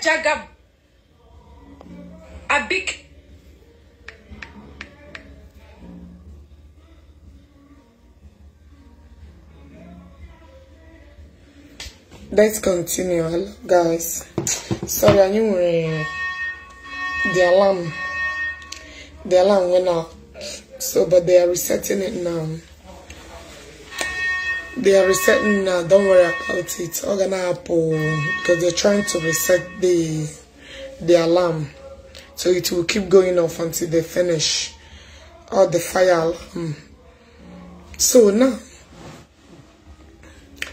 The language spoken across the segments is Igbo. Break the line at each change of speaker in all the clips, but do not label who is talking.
Jagab Abik. Let's continue, guys. Sorry, I knew uh, the alarm. The alarm went off. So, but they are resetting it now they are resetting now. Don't worry about it. It's all gonna happen because they're trying to reset the the alarm, so it will keep going off until they finish all the fire alarm. So now,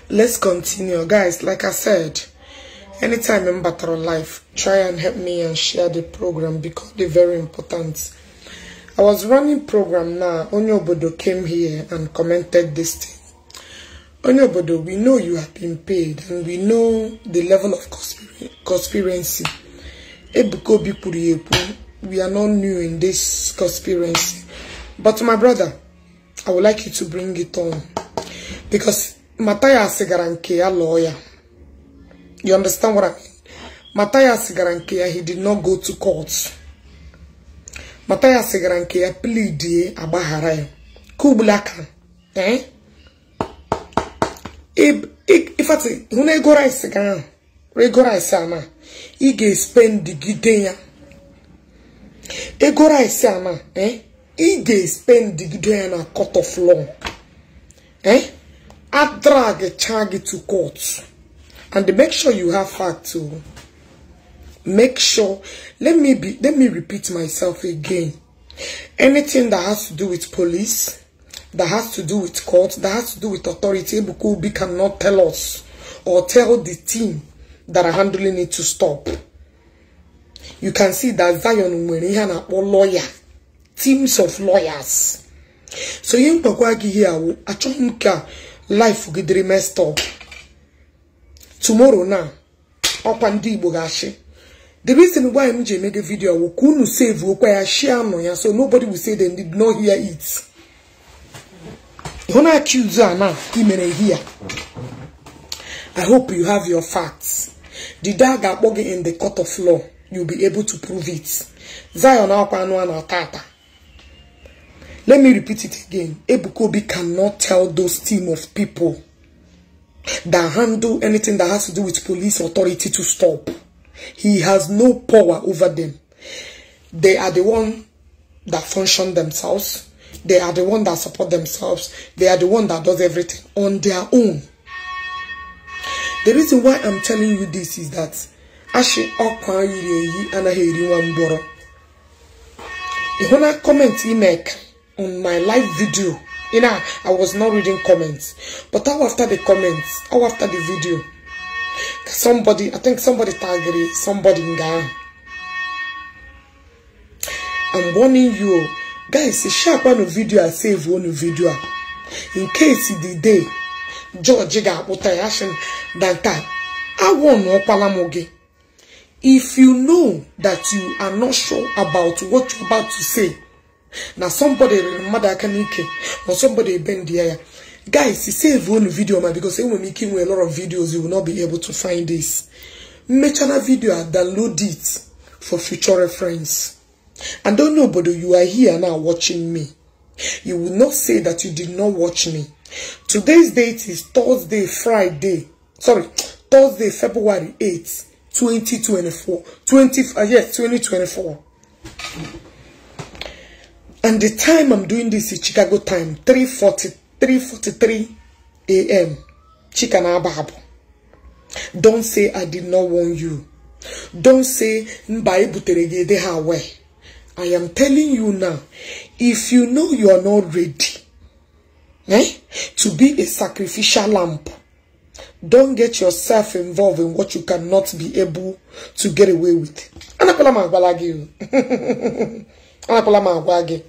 let's continue, guys. Like I said, anytime in battle life, try and help me and share the program because they're very important. I was running program now. Onyobodo came here and commented this thing. onye obodo we know you have been paid and we know the level of conspiracy ebuka obi kwuru ekwu we are not new in this conspiracy but my brother i would like you to bring it on because matayas gara nke ya lụọ ya you understand what i mean matayas gara nke ya he did not go to court matayas gara nke ya pleadie agbaghara ya ka ugbula eh ifati hụ na ego rice ga ahụ ego rice ana ị ga-espendi gide ya ego rice ana eh, ị ga-espendi gide ya na court of law eh, drag charge to court and make sure you have facts to make sure let me be let me repeat myself again anything that has to do with police that has to do with court, that has to do with authority, Ebuka Obi cannot tell us or tell the team that are handling it to stop. You can see that Zion na or lawyer, teams of lawyers. So you gị ihe awụ achọghị m ka life gị mess messed up. Tomorrow now ọkwa ndị Igbo ga-achị. The reason why m ji emego video awụ ka save okwa ya share nọ so nobody will say they did not hear it. don't accuse her now imere here i hope you have your facts the dog akpọghị in the court of law You be able to prove it zion akwa anụ na tata let me repeat it again ebuka obi cannot tell those team of people that handle anything that has to do with police authority to stop he has no power over them they are the one that function themselves They are the one that support themselves. They are the one that does everything on their own. The reason why I'm telling you this is that Ashi Okwa Yuri Anahiri Wamboro. If comment make on my live video, you know, I was not reading comments. But how after the comments, how after the video, somebody, I think somebody tagged somebody in Ghana. I'm warning you, guys sharp ọnụ video a save one video. in case the day George ga-akpụta ya sị na taa agwọ na ọkwala m gị if you know that you are not sure about what you're about to say now somebody rere mmadụ aka or somebody bend the ya guys save one video, man, because enwere m ike inwe a lot of videos you will not be able to find this Make na vidio a download it for future reference I don't know, but you are here now watching me. You will not say that you did not watch me. Today's date is Thursday, Friday. Sorry, Thursday, February 8th, 2024. 20, uh, yes, 2024. And the time I'm doing this is Chicago time, 3.40, 3.43 a.m. Chikanabahabo. Don't say I did not warn you. Don't say, mba ebutere de ha weh. I am telling you now, if you know you are not ready eh, to be a sacrificial lamp don get yourself involved in what you cannot be able to get away with. Anakwala m agwala gị. Anakwala m agwa gị.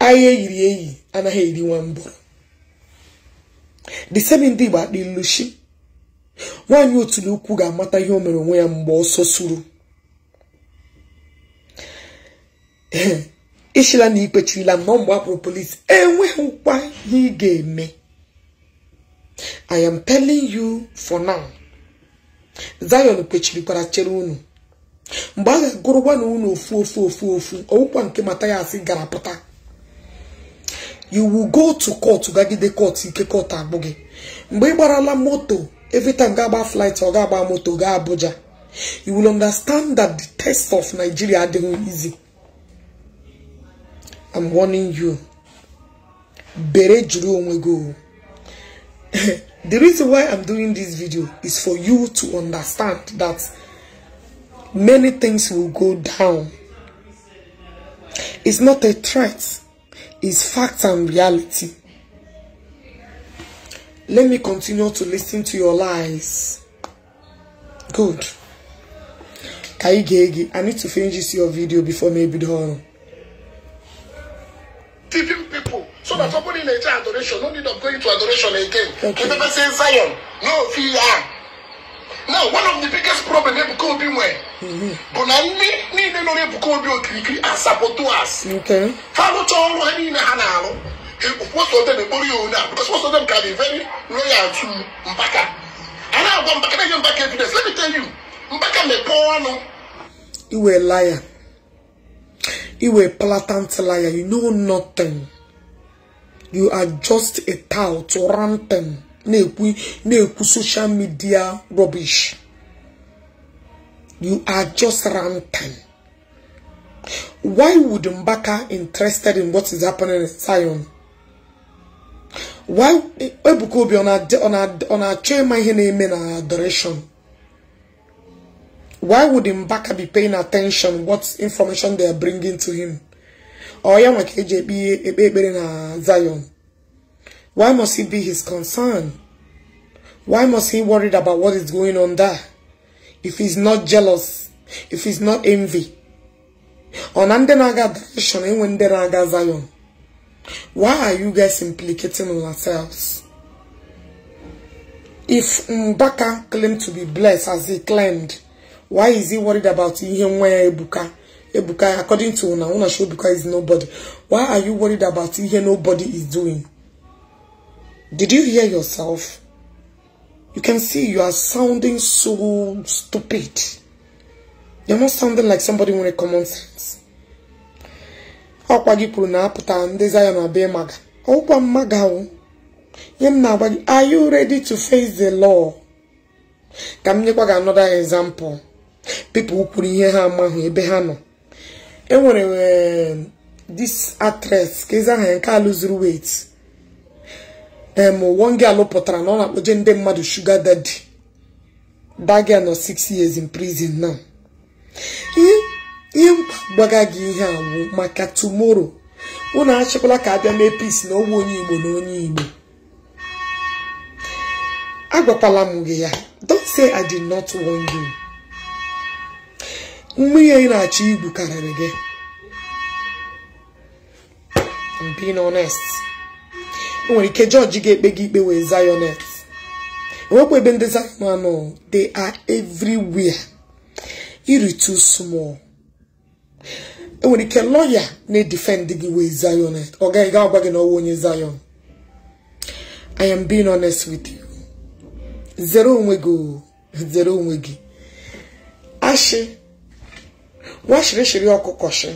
Ahịa eyiri eyi anaghị eri nwa mbụrụ. The same ndị Igbo akpa ilushi. Nwaanyị otulu ukwu ga-amata ihe o mere onwe ya mgbe ọsọ suru. ishila na ikpechirila m na mgbe akpụrụ enweghị enweghịkwa ihe ị ga-eme I am telling you for now Zion kpechirikwara chere unu mgbe a ga na unu ofu ofu ofu ofu ọwụkwa nke asị gara pụta you will go to court gagide court ike court agbụ gị mgbe ị gbarala moto evita ga-agba flight ọ ga-agba moto ga Abuja you will understand that the test of Nigeria adịghị easy I'm warning you. Bere go. The reason why I'm doing this video is for you to understand that many things will go down. It's not a threat. It's fact and reality. Let me continue to listen to your lies. Good. I need to finish this your video before maybe the
deceiving people so that somebody in nature adoration no need of going to adoration again You never say zion no fi ya now one of the biggest problems problem ebuka obi nwere mm-hmm. bụ na ndị niile nọ n'ebuka obi okirikiri asapoto as ha rụcha ọrụ ha niile ha na-arụ most of them ekporo ya onye a because most of them can be very loyal to mpaka a na-agwa mpaka na-enye mpaka evidence let me tell you Mbaka me mpaka mepee ọnụ
a liar You a blatant liar. You know nothing. You are just a tout ranting. Neku social media rubbish. You are just ranting. Why would Mbaka interested in what is happening in Zion? Why eh, Ebuko be on our on our on our chairman here name in adoration? why would Mbaka be paying attention what information they are bringing to him? Or ya nweke JB na Zion. Why must he be his concern? Why must he worried about what is going on there? If he's not jealous, if he's not envy. On na-aga Zion. Why are you guys implicating on yourselves? If Mbaka claimed to be blessed as he claimed, why is he worried about ihe nwa ya ebuka ebuka according to una una show ebuka is nobody why are you worried about ihe nobody is doing did you hear yourself you can see you are sounding so stupid you're not sounding like somebody nwere common sense ọkwa gị kwuru na-apụta ndị zion abịa maga ọkwa mmaga o ihe m na-agwa gị are you ready to face the law ka m nyekwa gị another example people kwuru ihe ha amaghị ebe ha nọ e nwere this actress ka eze aha ya nke a lụzuru em emonge alụpụtara na ọ na-akpọje ndị mmadụ shuga dadi dagia nọ 6 years in prison now ihe mkpa gị ihe awụ maka tumoro unu achịkwala ka abịa mee peace na ọgwụ onye igbo na onye igbo agwakwala m gị ya don't say i did not warn you mmiri anyị na-achọ igwu karịrị gị being honest enwere ike jọji ga-ekpe gị ikpe wee zayonet enwekwa ebe ndị zayon anọ they are everywhere iri too small enwere ike lọya na-edefend gị wee zayonet ọ gaghị ga agwa gị na ọwụ onye zayon I am being honest with you zere onwe gị zere onwe gị ashị washirishiri ọkụkọshi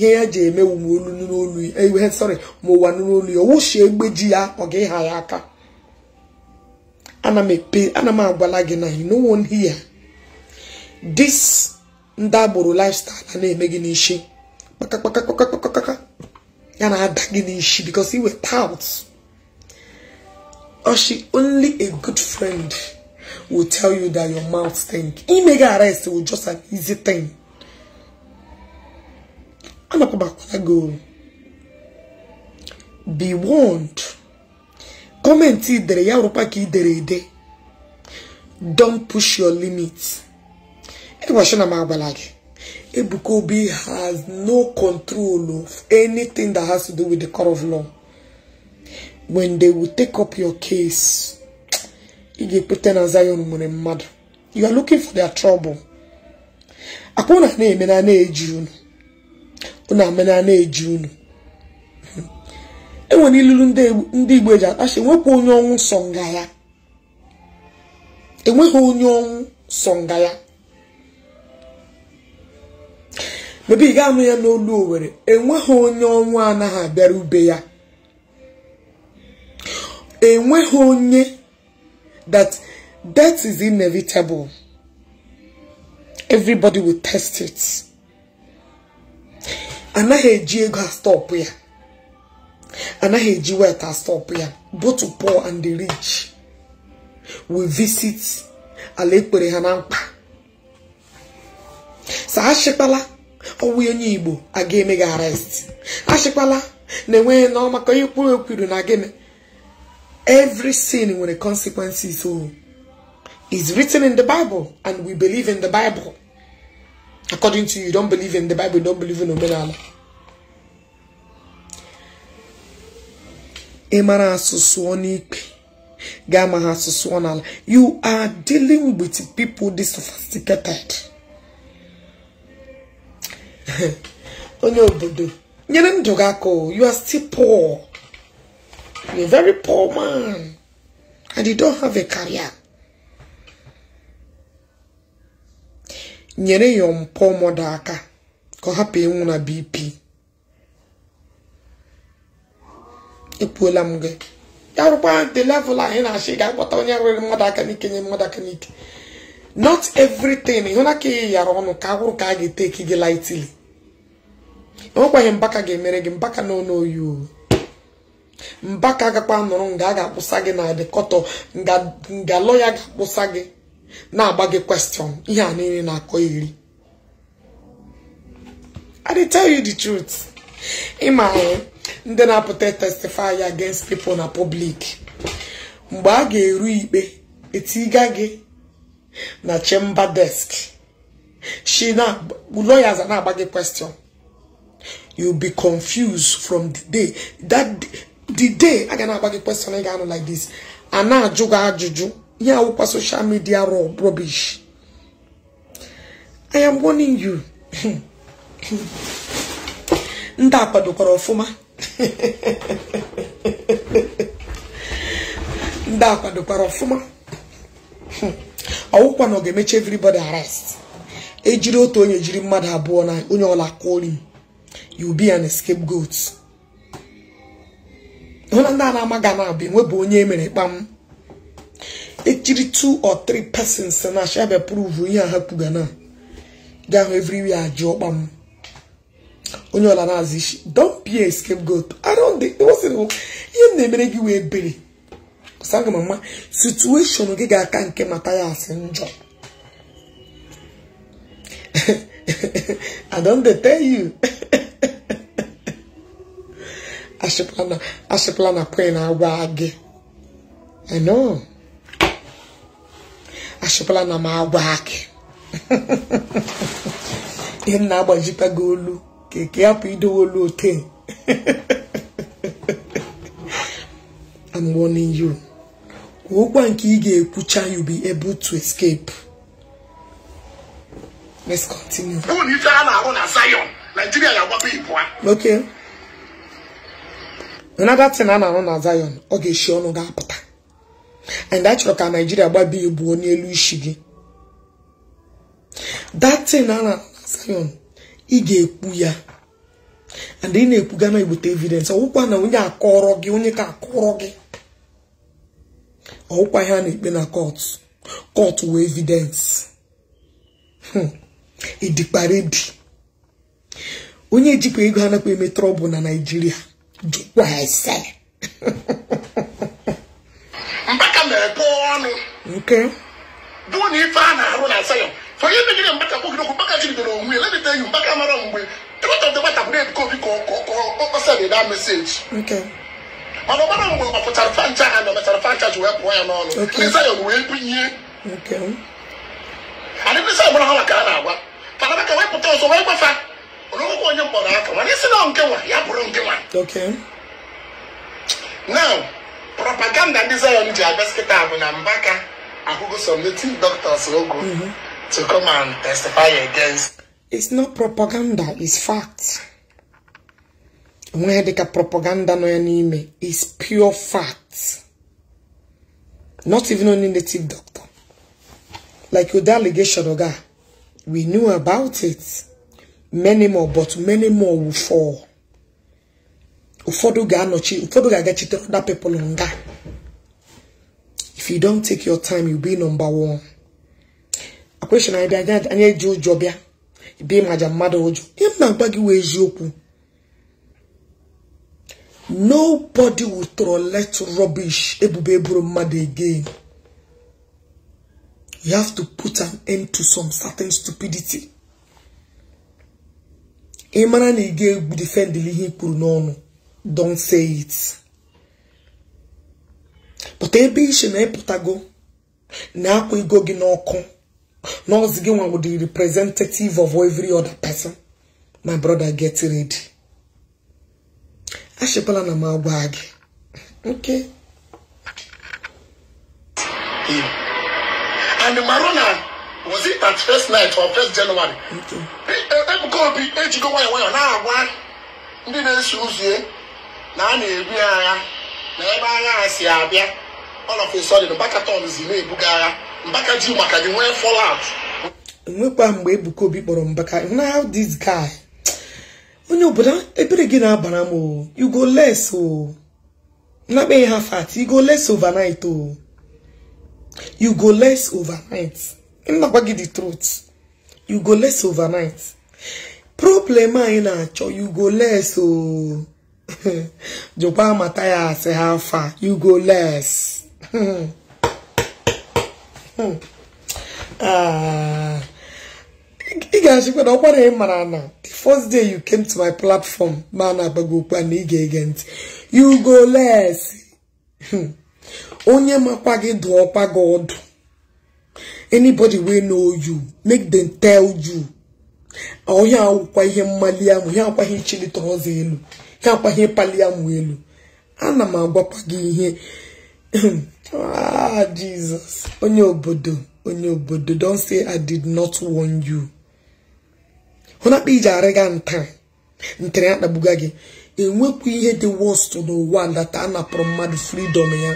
ihe ya ji eme olu n'olu ewe sorry ma ụwa n'olu ya owushi egbe ji ya ọ ga ha ya aka ana m agwala gị na you no one here this ndị agbụrụ lifestyle a na-eme gị n'ishi kpakakpakakpakakpakaka ya na-ada gị n'ishi because iweta out Oshi, only a good friend will tell you that your mouth stink. Imega arrest will just an easy thing. anakwabakwa gị o be warned gọọmenti idere ya rụkwa ka idere ede don't push your limit ịgwachi e na m agwala gị Ebuka Obi has no control of anything that has to do with the court of law when they will take up your case ị ga-ekweta na Zion nwere mmadụ you are looking for their trouble akpụ na na-eme na na-eji unu unu amena na-eji unu enwere ilulu ndị igbo eji akpachi enwekwa onye ọnwụ sọ nga ya enweghị onye ọnwụ sọ nga ya mebe ị ga-anụ ya n'olu were enweghị onye ọnwụ anaghị abịara ube ya enweghị onye that death is inevitable everybody will test it. anaghị eji ego astọpụ ya anaghị eji wet astọpụ ya both pour and the rich we visit ala ekpere ha na mkpa sa achịkpala ọwụ onye igbo aga eme gị arrest achịkpala na-enweghị nọọ ka onye kwuru ekwuru na gịnị every sin nwere consequences o oh. is written in the Bible and we believe in the Bible According to you, you don't believe in the Bible, you don't believe in Omenala. You are dealing with people this sophisticated. you are still poor. You're a very poor man. And you don't have a career. nyere ya mpọ mọdụ aka ka ọ hapụ ịnwụ na bp ekwuola m gị ya rụkwa the level anyị na ị ga-akpọta onye rụrụ mmadụ aka n'ike nye mmadụ aka n'ike not everything ịhụna ka ị yara ọnụ ka agwụrụ ka a ga-eteki gị lightly enwekwaghị mbaka ga-emere gị mbaka na ọnụ oyi o mbaka agakwa nọrọ nga a ga-akpụsa gị na adịkọtọ nga lọya ga-akpụsa gị na-agba gị kwestion ihe a niile na-akọ iri i dey tell you the truth ịma ndị na-apụta testify against people na public mgbe a ga-eru ikpe etiga gị na chamber desk she na lawyers na-agba gị question you be confused from the day that the day aga na-agba gị question ị ga-anụ like this a na-ajụ gị ajụjụ ihe awụkwa social media rubbish I am warning you ndị akwadokwara kwadokwara ọfụma ndị a ọfụma ọwụkwa na ga-emechi everybody arrest ejiri otu onye jiri mmadụ abụọ na onye ọla kori you be an scapegoat hụ na ndị a na-amaghị na-abịa onye emere kpam ejiri two or three persons na shebe prove ihe ha kwuga na ga-ahụ everywhere ajụ ọkpa ọkpam onye ọla n'azụ na-azụ isi don't be a scapegoat around the ihe m na-emere gị wee bere aga m ama gị ga-aka nke mata ya asị njọ I don't dey tell you ashịpụla na kwe na agwa gị I achịpụla na m agwa akị ihe m na-agbajikwa gị olu ka eke hapụ idowe olu ote I'm warning you ụgwọ nke ị ga-ekwucha you be able to escape let's continue ife
a na-arụ na Zion Nigeria ga-agbapụ ibu
a okay another thing a na-arụ na Zion ọ ga-eshi ọnụ ga-apụta and achọrọ ka naijiria gbaba igbuo n'elu isi gị datin ara Zion ị ga-ekwu ya and ị na-ekwuga na ebute evidence ọwụwa na onye akọrọ gị onye ka akọrọ gị ọwụkwa ihe a na-ekpe na kọt kọt wee evidence hmm. ịdịkparịdị onye ejikwa ego anakwa eme trọbụl na naijiria jụkwa ese a na-ego ọnụ bụ na ife a na-arụ na
asa ya onye megide mgbata kwogide okwu mgbaka jidebere onwe ya lebita enyi mgbaka mara mgbe ịkọta ndị gbata bụrụ ebuka obi ka ọkpọsa na eda meseji mana ọgbara mgbe ọ pụtara fancha ha na mechara fancha ji wee pụọ ya n'ọnụ lizayon wee bunye adịbisa gbara ha maka a na-agwa fanabaka wee pụta ọzọ wee gbafa olokoko onye mkpọrọ aka mana isi na nkewa ya bụrụ nkewa now propaganda ndị zion ji agosikịta bụ na mbaka ahụgo some doctors ogo mhm. to come and testify against
it's not propaganda it's fact onwe dịka propaganda nọ ya n'ime is pure fact not even only native doctor like with allegation oga we knew about it many more but many more will fall ụfọdụ ga-anọchi ụfọdụ ga-agachite other people nga if you don't take your time you be number one akwesịrị anyị bịa anyị eji ụjọ bịa ibe maja mmadụ ụjọ ị m na-agwa gị wee eziokwu nobody will trolet rubbish ebubo eburu mmadụ again you have to put an end to some certain stupidity ị mara na ị ga-egbu defendili ihe i kwuru n'ọnụ don't say it e ebe iche na eputago na-akwa ego gị n'ọkụ na ọzi gị nwa wụdị representative of every other person my brother get ready achịkwala na m agwa gị okay and marona was
it at first night or first january ebuka eh, eh, obi ejigo eh, nwayọ nwayọ na-agwa ndị na-eso ụzọ na a na-ebu agha na ebe agha ha si abịa ọlọfesọdịn mbakatọn zi na-ebuga agha mbaka ji maka gị nwee fọlat
nwekwa mgbe Ebuka Obi kpọrọ mbaka now this guy onye obodo ebere gị na-abara m o you go less o nakpeghị ha fat you go less overnight o you go less overnight nnakwa gị the truth you go less overnight problem anyị na-achọ you go less o jụkwa mata ya asị ha afa you go less ah, ị ga-achịkwa na ọkwara ị mara na the first day you came to my platform ma na agbago okwu na ị ga-ege ntị you go less onye makwa gị dụ ọkwa gị ọdụ anybody wey know you make them tell you ọhịa akwụkwa ihe mmali ahụ ihe akwaghị ichilite ọzọ elu ka ihe ịpali ya mụ elu ana m agwakwa gị ihe ah jizọs onye obodo onye obodo don say i did not warn you hụna kpa iji arịga nta ntere ya gị enwekwu ihe dị worst n'ụwa ndata a napụrụ mmadụ freedom ya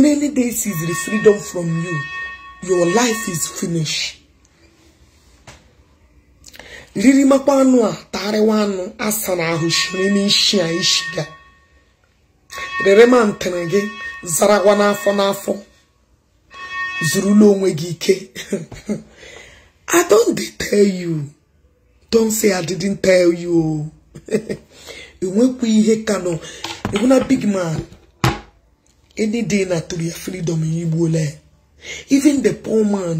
na any day the freedom from you your life is finished ririmakwa anụ a tarịwa anụ asa na ahụ shiri n'ishi a ishi ga rere ma ntịrị gị zarawa n'afọ n'afọ zurula onwe gị ike I don't tell you don't say I didn't tell you o enwekwa ihe ka nọ ebuna big man any day na tori ya freedom ya igbuole even the poor man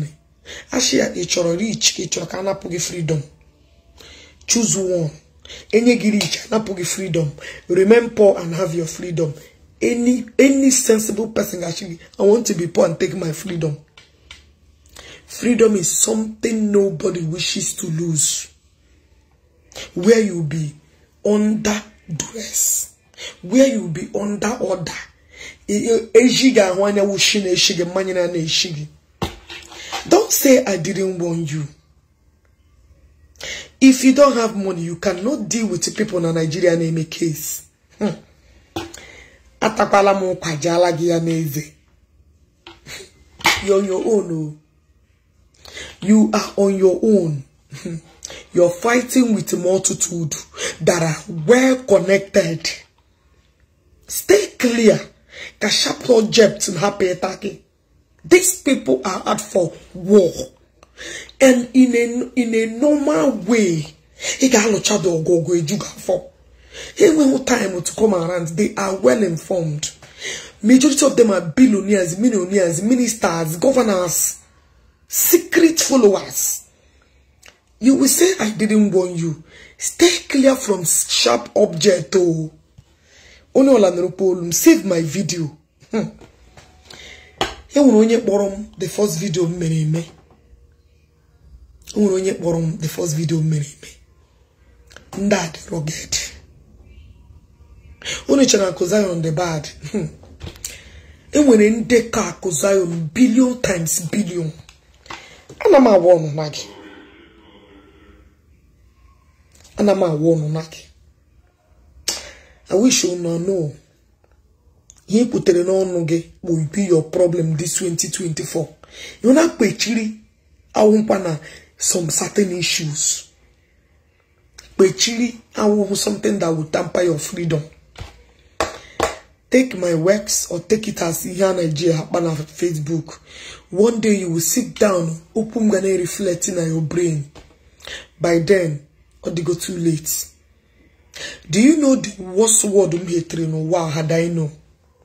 asị chọrọ rich ka ị chọrọ ka a napụ gị freedom Choose one. Any giri chanapugi freedom. Remain poor and have your freedom. Any any sensible person actually, I want to be poor and take my freedom. Freedom is something nobody wishes to lose. Where you be under dress? where you be under order. E, e, Don't say I didn't warn you. If you don't have money, you cannot deal with people in a Nigerian a case. Hmm. Atakwala mo kwajala giya neze. You're on your own. Oh. You are on your own. Hmm. You're fighting with a multitude that are well connected. Stay clear. Kasha project in happy attacking. These people are out for war and in a, in a normal way, he can a child or go go you for. He time to come around. They are well informed. Majority of them are billionaires, millionaires, ministers, governors, secret followers. You will say, I didn't warn you. Stay clear from sharp object. Oh, save my video. Hmm. He will only the first video. o nwere onye kpọrọ m the first video mere eme ndị a dị rugged unu chere akụ Zion the bad hmm. enwere ndekọ akụ Zion billion times bilion ana m awa ọnụ na gị ana m awa ọnụ na gị I wish you no know ihe ị kwutere n'ọnụ gị will be your problem this 2024 ị na-akpechiri na some certain issues. Pechiri, I will something that will tamper your freedom. Take my works or take it as Ihan Nigeria on Facebook. One day you will sit down, open and reflecting on your brain. By then, or they go too late. Do you know the worst word um hatred no wow had I know?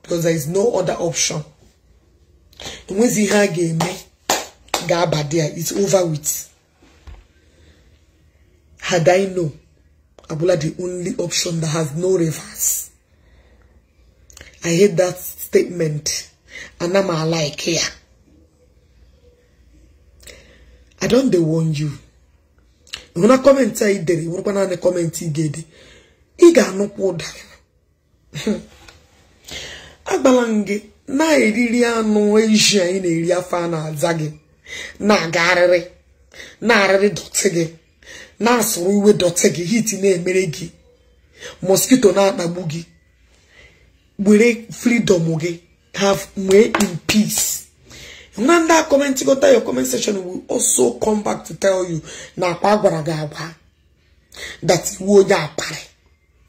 Because there is no other option. And when Ziha game, Gaba there, it's over with. Had I known, Abula the only option that has no reverse. I hate that statement. And I'm like here. I don't they warn you. When I comment I did it, when I comment I did it, I got no water. Agbalange, na eriri anụ eji anyị na-eri afọ a na-aza gị, na-aga na arịrị dote gị. na-asụrụ uwe dọtị gị hit na-emere gị mosquito na-akpagbu gị were freedom gị have nwee in peace na ndị a kọmentigota your comment section will also come back to tell you na akpa gwara gị agwa that iwu onye akpari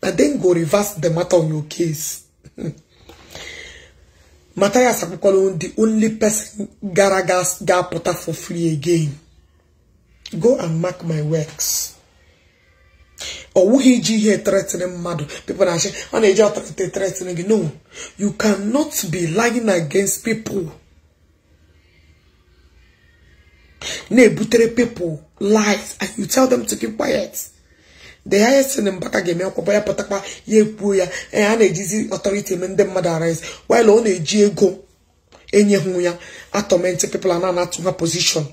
na then go reverse the matter on your case ya akwụkwọrọ the only person gara ga-apụta for free again go and mark my works ọ wụghị iji ihe threatening mmadụ pipo na asị ọ na-eji ọtọrịtị threatening gị no you cannot be lying against people na-ebutere people lies and you tell them to keep quiet the highest thing Mbaka ga-eme akwụkwọ ya pụtakwa ya ekwuo ya ee a na-ejizi ọtọrịtị eme ndị mmadụ arise while ọ na-eji ego enyeghụ ya atọmenti people na anatụ ha position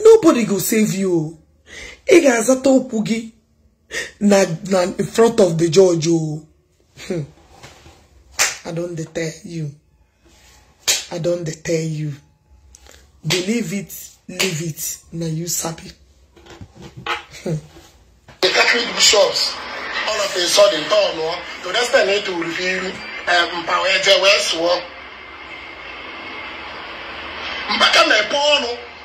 nobody go save you ị ga-azata okwu gị na na in front of the judge o oh. hmm. i don't dey tell you i don't dey tell you believe it leave it na you sabi. Hmm.
the catholic bishops all of a sudden tọ́ ọ̀nà to the extent to reveal um power the West mpaka na-epe ọnụ.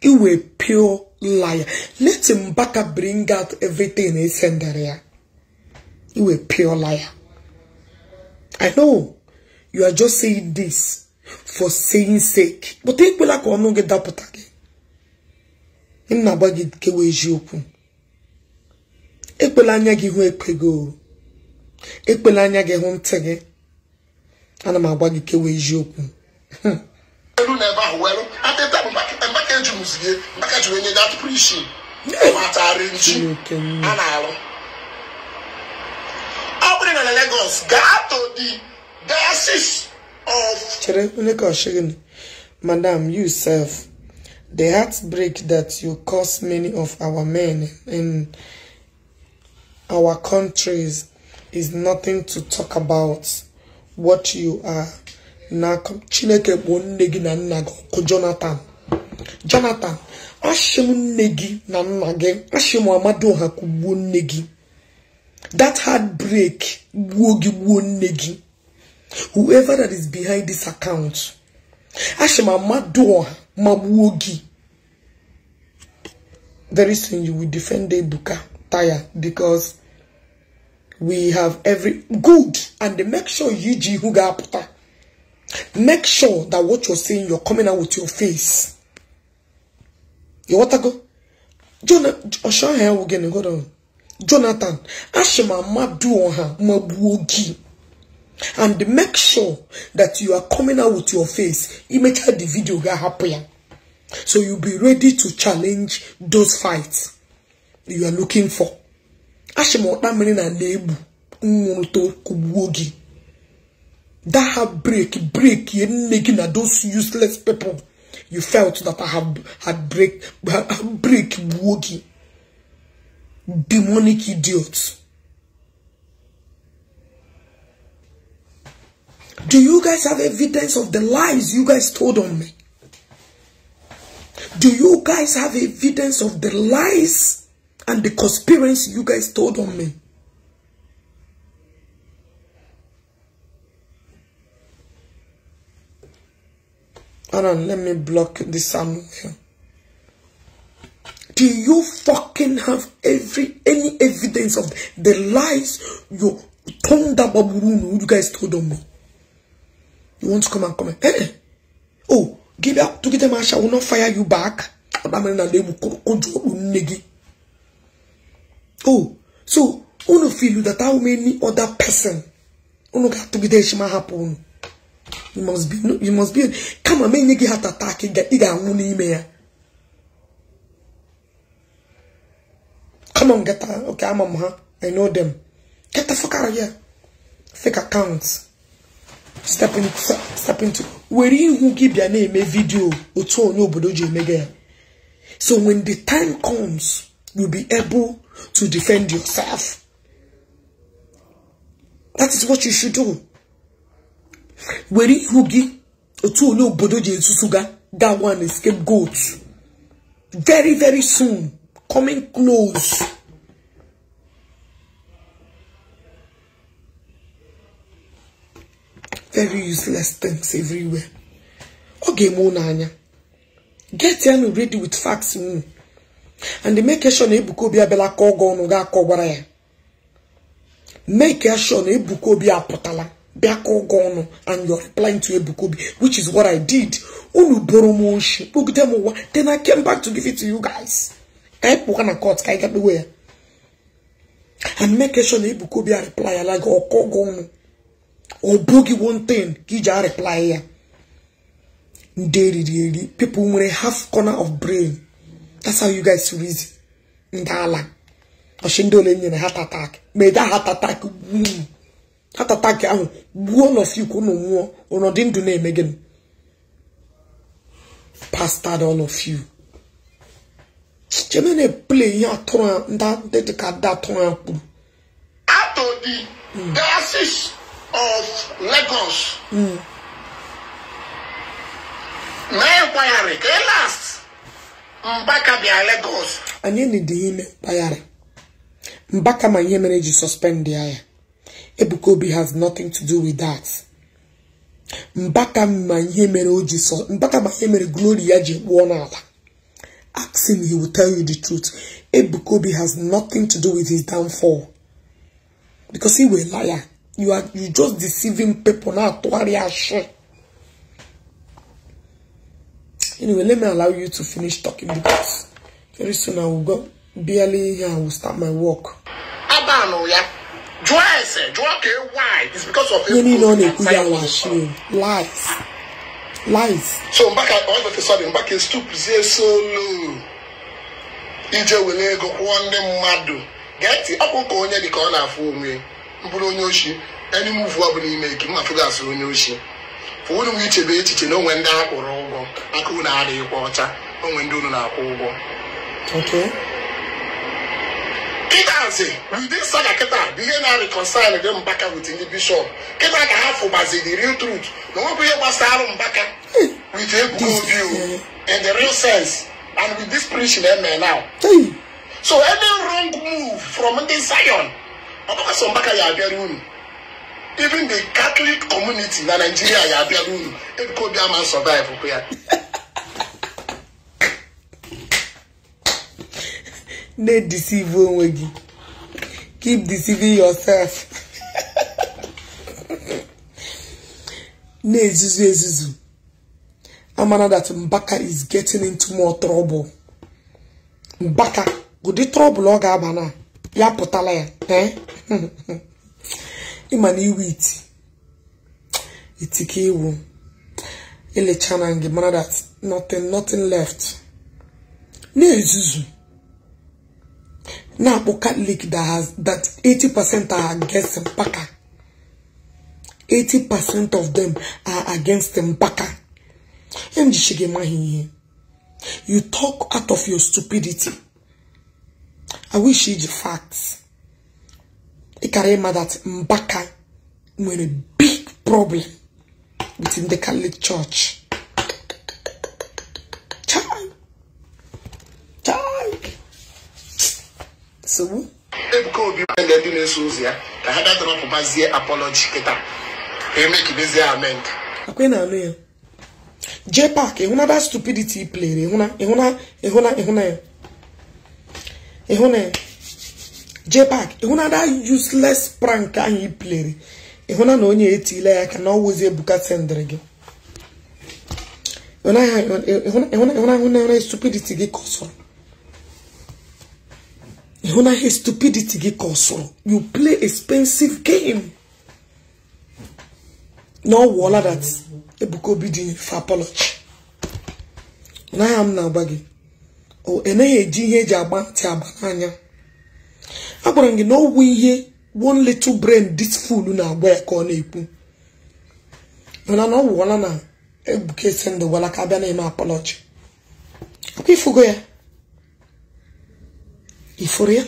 iwe piola pure liar. Let him back up bring out everything he sent there. ya. iwe pure liar. I know you are just saying this for saying sake. But take like on get that potake. In na bagi kewe jiokun. Ekwela anya gị hụ ekwe gị ekwela anya gị hụ ntị gị ana m agwa gị kewe eziokwu
juus gị aka ji onye dat prishin matara ntu a na-alụ Lagos gaa to
the diocese of chere madam you self the heartbreak that you cause many of our men in our countries is nothing to talk about what you are now, chineke bụ nne gị Jonathan jonathan ashim nne gị na nna gị ashim amadoha kugbuo nne gị that heartbreak gbuo gị gbuo nne gị whoever that is behind this account ashim ma magbuo gị very soon you will defend ebuka tire because we have every good and make sure you ji who ga-apụta make sure that what you're saying you're coming out with your face ịghọtago ọshọha ewu gị na godo jonathan ashị do on her, magbuo gị and make sure that you are coming out with your face imecha the video ga-ahapụ ya so you be ready to challenge those fights you are looking for ashị ma ọkpa mmiri na na-egbu nwụrụta kugbuo That have break break nne making na those useless people You felt that I have had break, break wogi. Demonic idiot. Do you guys have evidence of the lies you guys told on me? Do you guys have evidence of the lies and the conspiracy you guys told on me? Hold on, let me block this sound here. Do you fucking have every any evidence of the lies you told that Baburunu you guys told on me. You want to come and comment? Hey, eh, eh. oh, give up to get them I will not fire you back. Oh, so unu feel that how many other person unu got to get them happen you must be you must be kama ma enye gị heart attack ị ga-anwụ n'ime ya come on get her okay ama m ha i know them get the fuck out of here fake accounts step in step into were ihu gị bịa na-eme vidio otu onye obodo ji emega ya so when the time comes you'll be able to defend yourself that is what you should do were ihu gị otu onye obodo ji ga that one escape goat very very soon coming close very useless things everywhere ọ ga-eme unu anya get enu ready with facts unu and make sure na Ebuka Obi abịala ka ọgọ ọnụ ga-akọ gwara ya make sure na Ebuka Obi apụtala bịa ka ụgwọ ọnụ and you're applying to ebukobi which is what I did unu boro m oshi kpogide m ụwa then I came back to give it to you guys ka anyị na court ka anyị ga kpewe ya and make sure na ebukobi Obi a reply like ọkọ ụgwọ ọnụ ọ bụghị one thing ka iji reply ya ndị eriri eri people nwere half corner of brain that's how you guys read ndị ala ọchị ndị ole heart attack mede heart attack mm. tatata nke ahụ gbuo nọfik unu nwụọ ụnụ dị ndụ na-eme gịnị pastad ọnọfiu chemene ple ihe atụrụ ndị dịka ndị atụrụ ya kwuru out of the diocese hmm. of Lagos hmm. mee inquiry ka last Mbaka bịa Lagos anyị nidi ime mkpagharị Mbaka ma ihe mere eji sọspendị ya ya Ebukobi has nothing to do with that. Mbaka ma ihe mere mbaka ma ihe mere glory ya ji gwụọ Ask him, he will tell you the truth. Ebukobi has nothing to do with his downfall. Because he was a liar. You are you just deceiving people now to worry Anyway, let me allow you to finish talking because very soon I will go barely here and will start my work.
Abano, yeah. jụọ ese jụọ ka why is because of ihe niile
ọ na-ekwu ya lies lies
so ije ego kwụọ ndị mmadụ geti ọkpụ ka onye dị ka ọ na-afụ onwe mbụrụ onye oshi enyi m ụfụ ọ bụla ime ike mma onye oshi fụrụ m ichebe echiche na onwe ndị akwụrụ ụgwọ na unu adịghịkwa ọcha onwe ndị unu na-akwụ ụgwọ kịtazi ndị nsala kịta bụ ihe na-reconcile gị mbaka with ndị bishọp kịta ka ha fụbazi the real truth na nwebụ ihe gbasara mbaka with ebugo obi in the real sense and with this preaching eme eh, now so any wrong move from ndị zion ọ bụkwa mbaka ya abịara unu even the catholic community na nigeria ya abịara unu ebiko obi ama survive kwa ya
na-edisivu onwe gị keep deceiving yourself na-ezuzu ezuzu amana that Mbaka is getting into more trouble Mbaka ụdị trouble ọ ga-aba na ya pụtala ya eh? ịma na iwe iti iti iwu elecha na gị mara that nothing nothing left na-ezuzu na akpụ catholic that has that 80% are against mpaka 80% of them are against mpaka emjichighi maghị ihe you talk out of your stupidity i wish you the facts ịkara ịma that mpaka nwere big problem within the catholic church nsogbu
ebuka obi na ndị na-eso ụzọ ya ka ha gadrọpụbazie apology kịta emekidezie amend
akwe na alụ ya jpak ịhụna that stupidity plere ịhụna ịhụna ịhụna ịhụna ya useless prank ahụ i plere ịhụna na onye etila ya ka na ọwụzi ebuka sendịrị gị ịhụna ịhụna ịhụna stupidity gị kọsọrọ ịhụna ihe stupidity gị ka ọ you play expensive game na ọ wụọla that Ebuka Obi dị for na m na-agba gị o enaghị eji ihe eji agba ntị agba n'anya gwara m gị na ọwụ ihe one little brain this fool na-agwa ya ka ọ na-ekwu mana na ọ na Ebuka esi ndụ gwara ka abịa na-eme apology akwa ifugo ya ifuru ya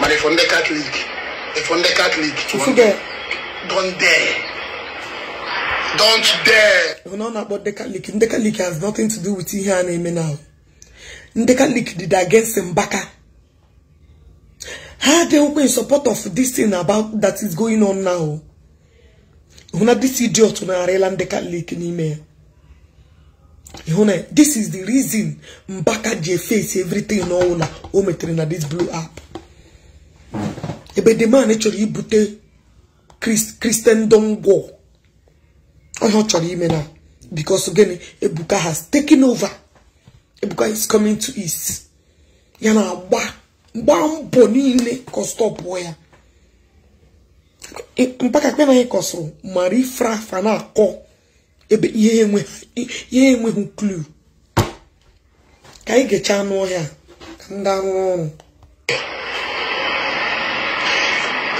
mana
ifo ndị katọlik ifo ndị katọlik don't dare
don't dare ifo na ọ na-akpọ ndị catholic ndị katọlik has nothing to do with ihe a na-eme now ndị katọlik did against mbaka ha dey open in support of this thing about that is going on now hụ na this idiot na-arịla ndị katọlik n'ime ya you na this is the reason mbaka ji face everything n'ọwụla o metere na this blue app ebe the man e chọrọ ibute christendom war onye chọrọ ime na because gịnị ebuka has taken over ebuka is coming to east ya na agba mgba mbọ niile kọstọpụ ya mpaka kpe na anyị kọsụrụ mara afa na-akọ ebe ihe enweghị klu ka anyị ga-eche ka ndị arụ ọrụ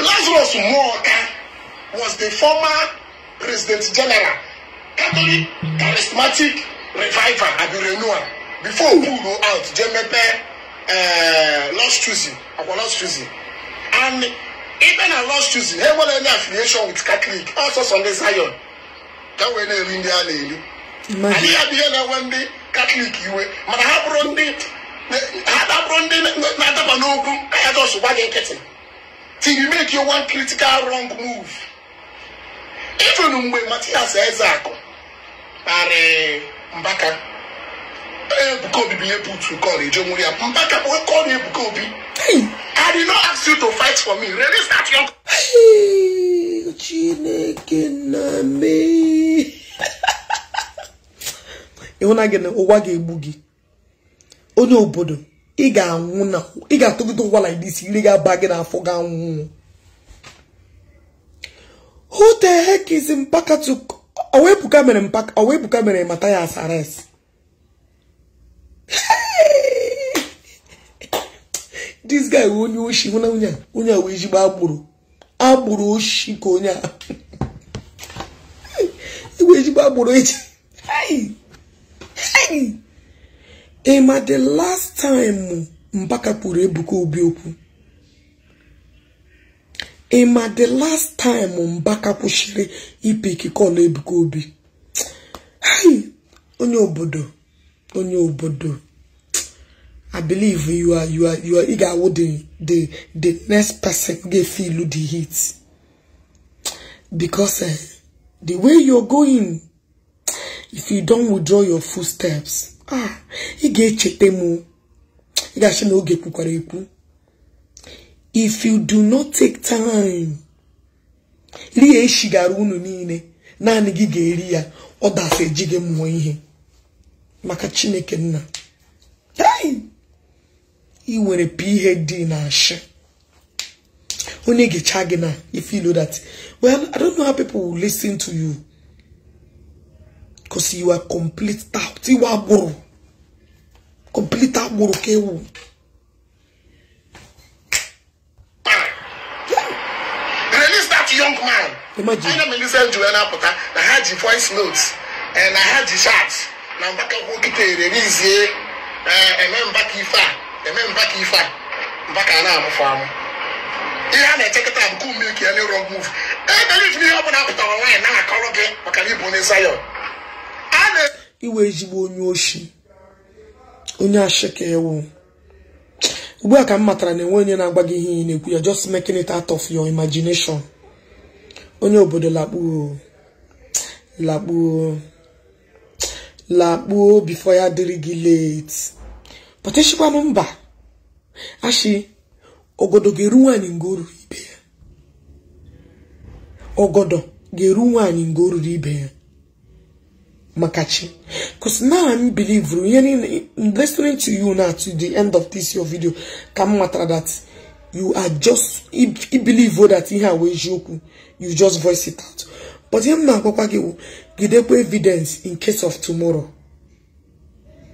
Lazarus Muoka was the former
president general Catholic charismatic reviver at the renewal before Okpuru out jee mepee eh, Lost Choosing akwa Lost and even na Lost Choosing enwere any affiliation with Catholic also Sunday Zion ka wee na-eri ndị a na-eri anyị ya bụ ihe na-enwe ndị katọlik iwe mana ha bụrụ ndị na-adaba n'okwu ka ya jọs gwa gị nkịtị till you make one critical wrong move even mgbe Matias Ezeaku narị mbaka Ebuka Obi bụ ihe putu kọl eje nwere ya mbaka bụ kọl Ebuka Obi I did not ask you to
fight for me release that young chineke na me ịhụna gị na ụwa ga-egbu gị onye obodo ị ga-anwụ na ị ga-atụgide ụwa like this ire ga-aba gị n'afọ ga-anwụ who the heck is mpaka to owebuka mere mpaka owebuka mere mata ya asares this guy onye oshi hụna onye a onye a wee jigba agbụrụ agbụrụ oshi ka onye a igwe e ejigbo agbụrụ eji ịma the last time mbaka kwuru ebuka obi okwu ịma the last time mbaka kwụsịrị ipe ikike ọla ebuka obi onye obodo onye obodo I believe you are you are you are eager with the the the next person get feel the heat because uh, the way you're going if you don't withdraw your footsteps ah he get echeta m ị ga-achị if you do not take time liye echi gara unu niile naanị gị ga-eri ya ọ dafe ji gị ihe maka Chineke nna ị nwere phd na ashị onye ga-echa gị na if you know that well i don't know how people will listen to you because you are complete tout iwe agbụrụ complete agbụrụ ka ewu
release that young man imagine ana m elisa njuru na-apụta na ha ji voice notes na ha ji chat na mgbakọ kịta ererizie uh, eme mbakọ ife a eme mba ka ife a mba ka a na-amụfụ amụ ihe a na-echekọta abụkụ mmeki ele rog move ebeliv n'ihe ọbụla pụtara nwaanyị na-akọrọ gị maka na ịbụ onye Zion
a na-iwe ezigbo onye oshi onye ashịka ewu ugbu a ka m matara na enwe onye na agba gị ihe ị na-ekwu ya just making it out of your imagination onye obodo lakpuo lakpuo lakpuo before ya dịrị gị late pọtechikwanụ mba ashị ogodo ga-eru nwaanyị nga o ibe ya ga-eru nwaanyị o ibe ya maka chi because now I'm believer ihe niile listening to you now to the end of this your video ka m matara that you are just i believe that ihe a wee eziokwu you just voice it out but ihe m na-agwakwa gị gidekwa evidence in case of tomorrow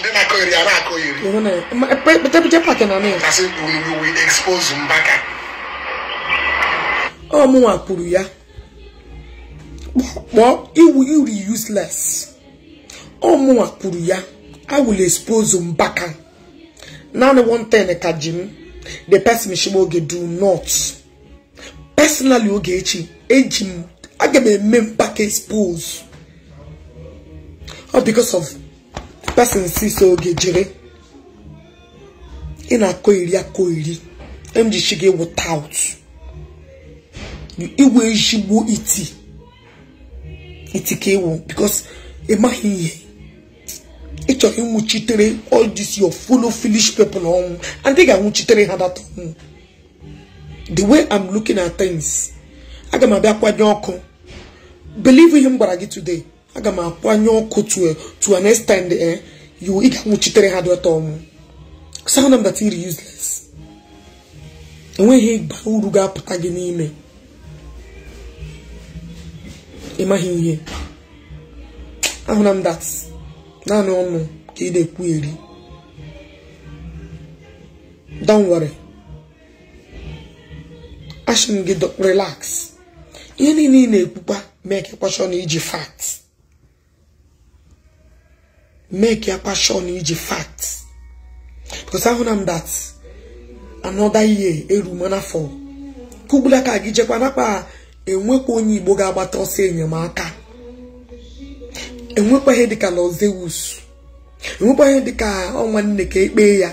ndị na-akọ iri a na-akọ
iri kasị we expose Mbaka ọ mụnwa kwuru ya kpọọ iwu iri useless ọ mụnwa kwuru ya I will expose Mbaka naanị one thing ka ji m the person shigba oge do not personally oge echi eji m aga m eme Mbaka expose ọ because of person so oge jere ị na-akọ iri akọ iri emjichi gị without iwe ezigbo iti iti ka iwu because maghị ihe ị chọrọ ịnwụchitere all this your full foolish na ọnwụ andị ga-anwụchitere ha data ọnwụ the way I'm looking at things aga m abịa kwanye ọkụ believe ihe m gwara gị today aga m akwanye ọkụ to eh, an extent eh you ị ga-anwụchitere ha dị ọtọ ọmụ sound mbata iri useless enweghị igba uru ga-apụta gị n'ime ịmaghị ihe ahụna m dat naanị ọnụ ka ị na-ekwu eri danwere ashin gị relax ihe niile ị na-ekwukwa mee ka kwashọn iji facts make ya passion iji fat because ahụ na m that another year eru mana for kugbula ka gị jekwa nakpa enwekwa onye igbo ga-agbata ọsọ enyemaka enwekwa ihe dịka lọzewus enwekwa ihe dịka ọnwa nne ka ekpe ya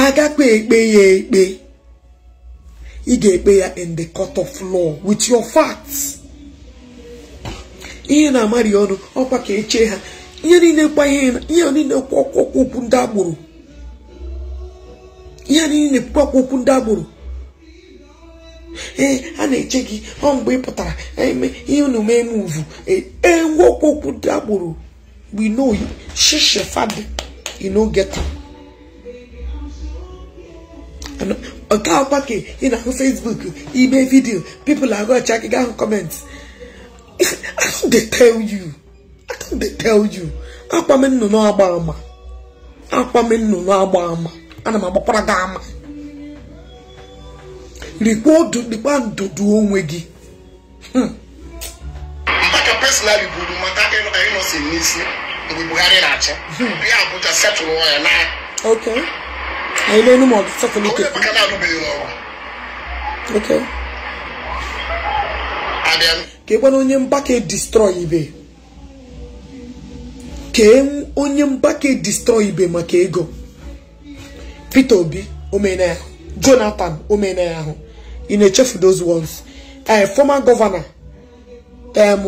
agakpe ekpe ya ekpe ị ga-ekpe ya in the court of law with your ihe na-amarị ọnụ ọkwa ka echee ha ihe niile kwa ihe ihe niile okwu ndị agboro ihe niile okwu okwu ndị agboro ee a na-eche gị ọ mgbe ị pụtara e ihe unu mee muvu ee ngwa okwu ndị agboro we know shishe fadị you no get am nke akwa ka ị na-ahụ Facebook ime vidiyo people are go check gị ahụ comment I don't dey tell you dey tell you akwa m nnụnụ agba ama akwa m nnụnụ agba ama ana m agbakwara gị ama rikwa ndụdụ onwe gị hmm.
ka personally buru mata anyị nọsi n'isi mgbe na-achị hmm. ya
na kee onye mgbake destroy ibe maka ego Peter Obi omena ya Jonathan omena ya ahụ ị na-echefu those ones ee eh, former governor em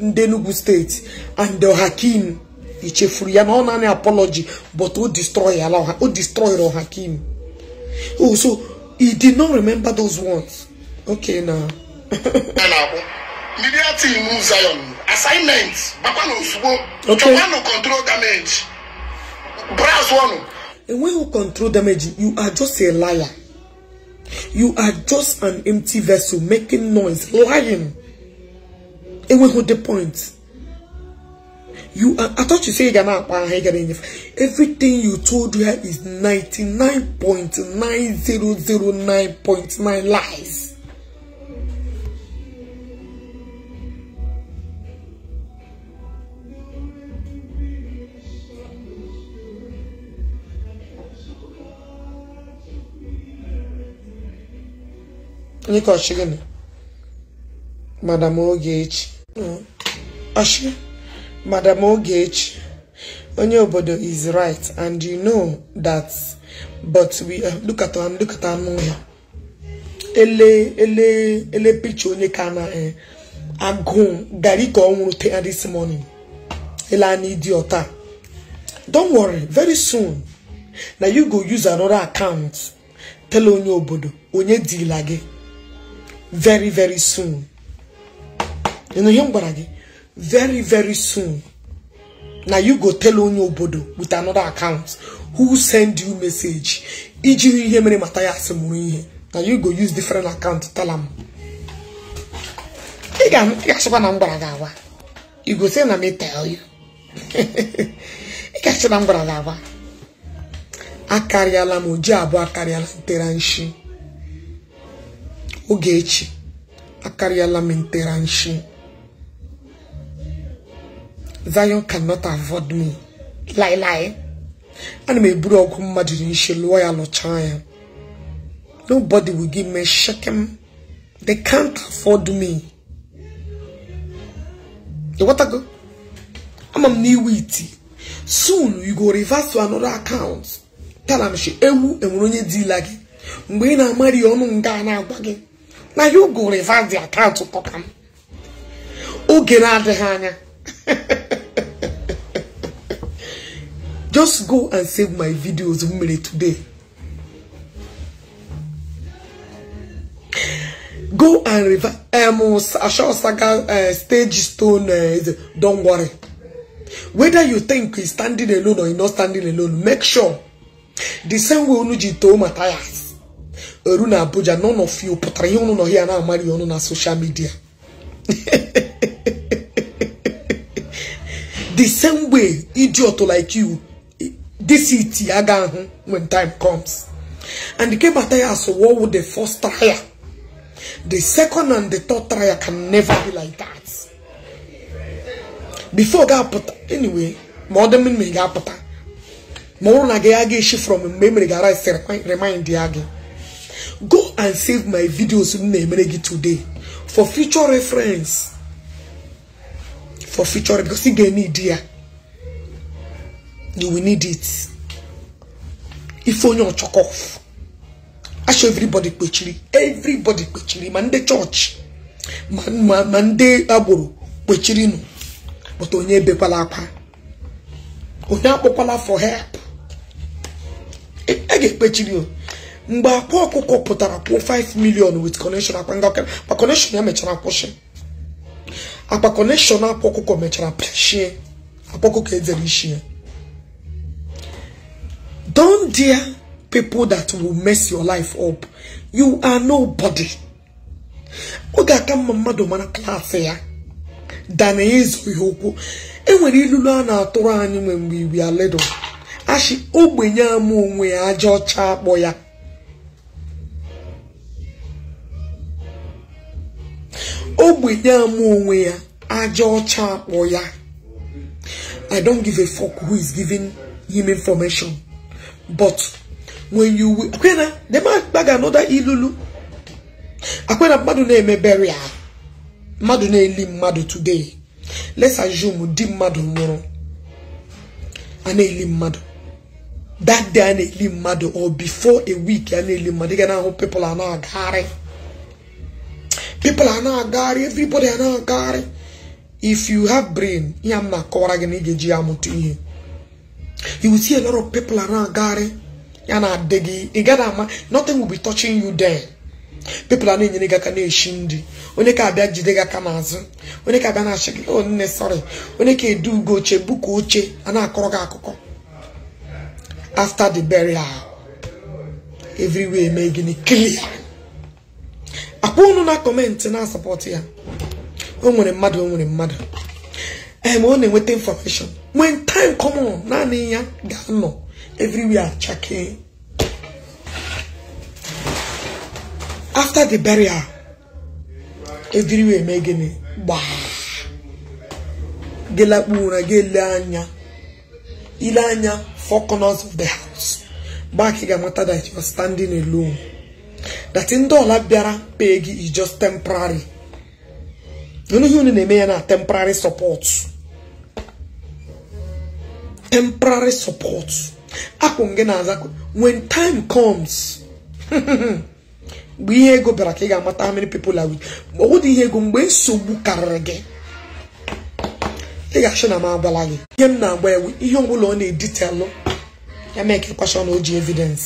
ndị Enugu steeti and Hakim ichefuru ya na ọ naanị apology but o destroy ala o destroy Hakim oh so he did not remember those ones okay na
media team move Zion. Assignment. Bakwano Usubo.
Okay. Chobano control damage. Brass one. And when you control damage, you are just a liar. You are just an empty vessel making noise, lying. And we hold the point. You are, I thought you said you're not Everything you told her is ninety nine nine nine point point zero zero nine lies. Onyeka ọchịgịnị madam Ogechi ọchị madam onye obodo is right and you know that but we eh, look at am look at anụ ya ele ele ele picture onye ka na eh, agụụ gari ka ọ nwụrụ taa this morning ele anyị ịdị ọta don't worry very soon na you go use another account tell onye obodo onye dila gị very very soon ịnụ ihe m gwara gị very very soon na you go tell onye obodo with another account who send you message ijiri ihe mere mata ya asị mụrụ ihe na you go use different account tell am ị ga-achịkwa na mgbara gwara gị agwa you go say na me tell you ị ga na mgbara gwara gị agwa akarịala m oji abụọ akarịala tere nshi Ogechi akarịala m ntera nteranshi Zion cannot afford me laịlaị ana m eburu ọgụ mmadụ dị nshi lụọ ya lụchaa ya nobody will give me shekem they can't afford me ịghọtago ama m n'iwu iti soon you go reverse to another account tell am she ewu enwere onye dila gị mgbe ị na-amari ọnụ nga na-agwa gị na you go reverse the account to talk am oge na-adịghị anya just go and save my videos m today go and reverse um, Asha saga uh, stage stone uh, don't worry whether you think he's standing alone or he's not standing alone make sure the same way Onuji told Matthias eru na abuja none of you pụtara ihe ụnụ nọ ya na-amarị ọnụ na soshal midia the same way idiot like you this it aga ahụ when time comes and nke bata ya so what would the first trial the second and the third trial can never be like that before ga-apụta anyway ma ọ dị mma ga-apụta ma ọ na gị aga eshi from mgbe emere mere gị ara remind ya gị go and save my videos today for future reference. For future because you get need here. You will need it. If only on chalk off. I show everybody pechiri. Everybody pechiri. Mande church. Man, man, mande aboro. Pechiri no. But onye bepalapa. Onye apokola for help. I e, e get pechiri. mgbe akwa ọkụkọ pụtara kwụọ 5 million with connection akpa connection ya mechara kwụsị akpa connection akwa ọkụkọ mechara pịashie akpa ọkụkọ ezere ishi don dear people that will mess your life up you are nobody ọ ga-aka mma mmadụ mara klaasị ya dana ịzụ ihe okwu enwere ilulu a na-atụrụ anyị nwe mgbe ibi aledo ashi ogbenye ama onwe ya aja ọcha akpọ ya ogbenye ama onwe ya aja ọcha akpọ ya i don't give a fuck who is giving him information but when you akwena na-agbaga anọda ilulu akwena mmadụ na emeberi mmadụ na-eli mmadụ today let's assume di mmadụ nwụrụ a na-eli mmadụ that day a na-eli mmadụ or before a week a na-eli mmadụ ị ga na-ahụ people a na-agagharị people are not agari everybody are not if you have brain ihe m na-akọwara gị na ị ga-eji ya amụta ihe you will see a lot of people are ya na-adị gị ị gaghị ama nothing will be touching you there people are na-enyere gị aka na-eshi ndị onye ka abịa jide gị aka n'azụ onye ka abịa na-achị gị one nne sorry onye ka edu ugo oche buka oche a na-akọrọ gị akụkọ after the burial everywhere mee gịnị clear akwa unu na kọmentị na-asapọtụ ya o nwere mmadụ o nwere mmadụ em ọ na-enweta information when time come naanị ya ga-anọ a chake after the burial everywhere mee gịnị gbaa gelakpu ụra gị ele anya ile anya four of the house ka ị ga-amata that you are standing alone that ndị ọla bịara pee gị is just temporary unu ihe unu na-eme ya na temporary support temporary support akwụ gị na-aza when time comes mgbe ihe ego bịara ka ị ga-amata amịrị many people are with ọ dị ihe ego mgbe nsogbu karịrị gị ị ga-achọ na m agwala gị ihe m na-agba ewu ihe ọbụla ọ na-editelụ ya mee ka ịkwasha na o ji evidence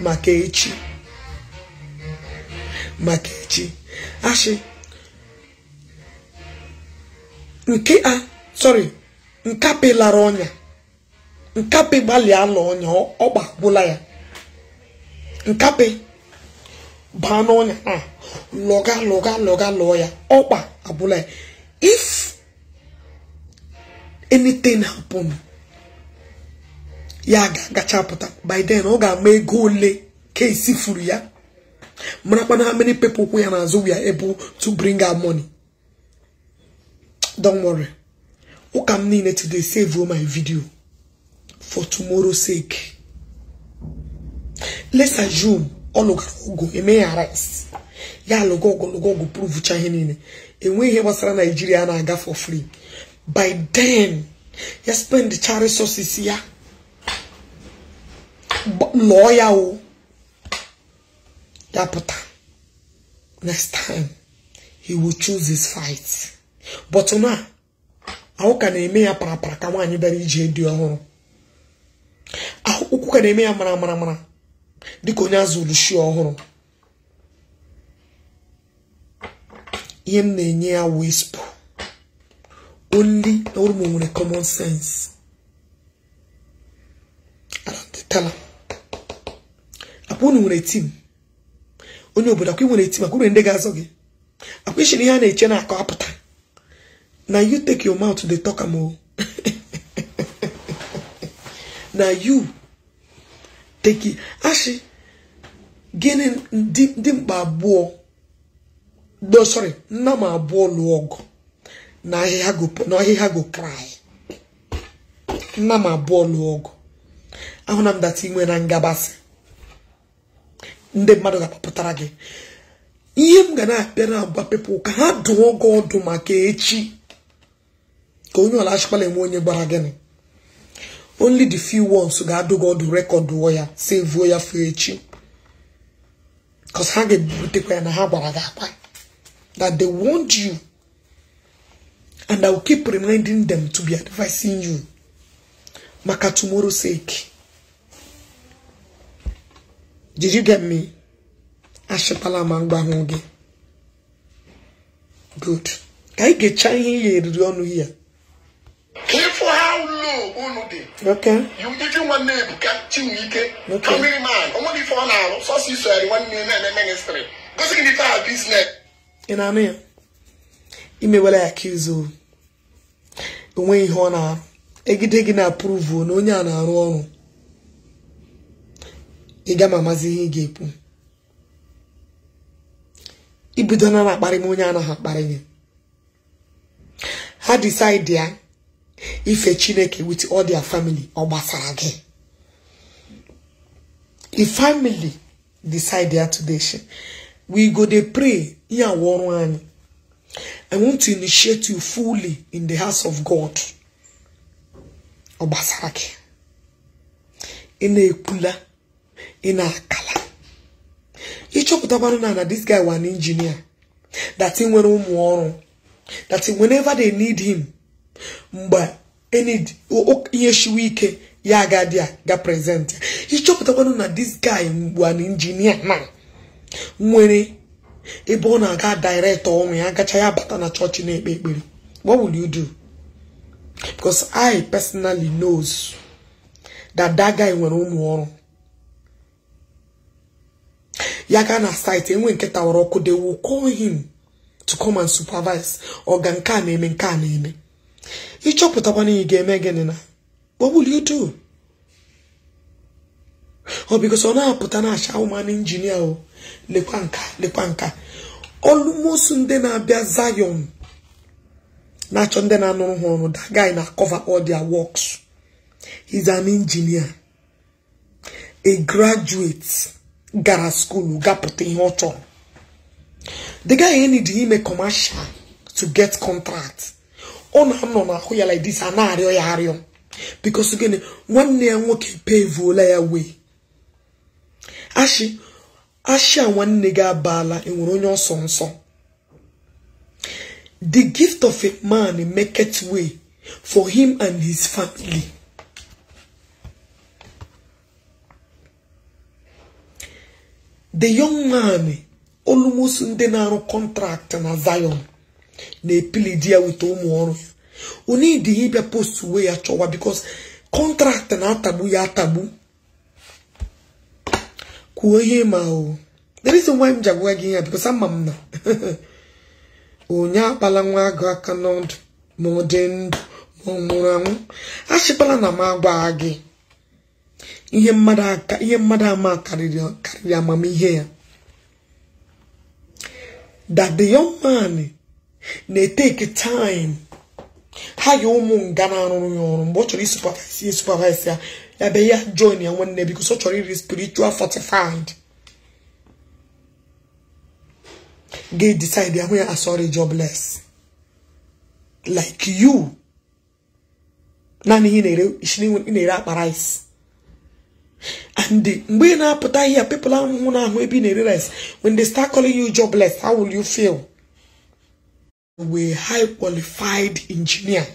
maka echi maka echi ashị nke a sorry nkapị lara ọnya nkapị gbalịa ala ọnya ọgba ya nkapị baa n'ọnya a lọga lọga lọga lọọ ya ọkpa abụla ya if anything happen ya ga-agachapụta by then ọ ga-ama ego ole ka esi furu ya marakwana how many people ya n'azụ we are able to bring out money don't worry ụka m niile today save my video for tomorrow sake let's assume ọ lụgara ọgụ emeghe rice ya alụgo ọgụ lụgo ọgụ ihe niile enweghị ihe gbasara naijiria na-aga for free by then ya spend cha resources ya lụọ ya o oh. dapụta next time he will choose his fight but na ahụ na-eme ya parapara ka nwaanyị bịara ije dị ọhụrụ ụkwụ ka na-eme ya mara mara mara dịka onye azụrụ shi ọhụrụ ihe m na-enye ya na only orụm nwere common sense apụ na nwere tim onye obodo akwa nwere eti maka uru ndị ga-azọ gị akwa ishiri ihe a na-eche na akọ apụta na you take your mouth dey talk am o na you take ashị gịnị dị mkpa abụọ no sorry nna m abụọ lụọ ọgụ na ahịhịa go cry nna m abụọ lụọ ọgụ ahụ na m data inwe na ngabasị ndị mmadụ ga-apụtara gị ihe m ga na na agba pepụl ka ha dụọ gị ọdụ maka echi ka onye ọla achịkwala enwe onye gbara gịnị only the few ones ga-adụ gị ọdụ rekọdụọ ya sevuo ya fụ echi because ha ga-ebutekwa ya na ha gwara gị akpa that they want you and I will keep reminding them to be advising you maka tomorrow sake Did you get me? Ashịpala ma mgbanwụ gị. Good. Ka anyị ga-echa ihe ihe eriri ọnụ ya.
how low unu oke Okay. Iji nwanne Ebuka Chinwike. Okay. Kamiri man, ọ ọ na-arụ so iso eri nwanne ya na-eme ministry. Gosi gị biznes.
Ị na-anụ ya? Imewela ya onweghị ihe ọ na-arụ. Egide gị na-apụrụvuo na onye a na-arụ ọrụ. ịga mamazi ihe ị ga-ekwu ibido na na-akparị m onye anaghị akparị ya ha decide ya ife chineke with all their family ọ gbasara gị the family decide ya today we go dey pray ihe awụ ọrụ anyị I want to initiate you fully in the house of God. Obasarake. Ina ekula. ị na-akala ịchọpụtakwanụ na na this guy wa an that dati nwere ụmụ ọrụ that dati whenever they need him mgbe enid ihe shiwe ike ya agadi a ga prezent ịchọpụtakwanụ na this guy mgbe an injinia na nwere ebe ọ na-aga direktọ ọnwụ ya gacha ya bata na chọọchị na-ekpe ekpere what will you do because i personally knows that that guy nwere ụmụ ọrụ ya gaa na site enwe nke tawara ọkụ de will call him to come and supervise nke a na-eme nke a na-eme ịchọpụta ị ga-eme gịnị na what will you do ọ bikos ọ na-apụta na acha ụman injinia o lekwa nka lekwa nka ndị na-abịa zayon na-achọ ndị na-anụrụ ha ọrụ that guy na cover all their works he's an engineer a graduate gara skulu gapụta ihe ọ chọrọ the guy need ime commercial to get contract ọ na-anọ n'ahụ ya like this a na-arịọ ya arịọ because gịnị nwanne ya nwoke pevuola ya wee ashi ashi a nwanne gị abaala enwere onye ọsọ nsọ the gift of a man make it way for him and his family the young man almost ndị na-arụ kọntraktị na Zion na-epili di ya weta ụmụ ọrụ ya ịbịa post uwe ya chọwa because kọntraktị na-atagbu ya atagbu kwuo ihe ma o the reason m ji agwa gị ya because ama m na onye akpala nwa agụ aka n'ọdụ ma ọ dị ndụ ma ọ nwụrụ anwụ achịkwala na m agwa gị ihe mmadụ ama karịrị amamihe ya that the young man na-eteki time ha ya ụmụ nga na-arụrụ ya ọrụ mgbe ọ chọrọ isupavise ya supavise ya ya be ya join ya nwanne bikos ọ chọrọ iri spiritual fortified ga decide ya hụ ya asọrị ah, jobless like you naanị ihe ị na-ere akpa rice and mgbe ị na-apụta ihe people ahụhụ na-ahụ ebi na-ere rice when they start calling you jobless how will you feel we high qualified engineer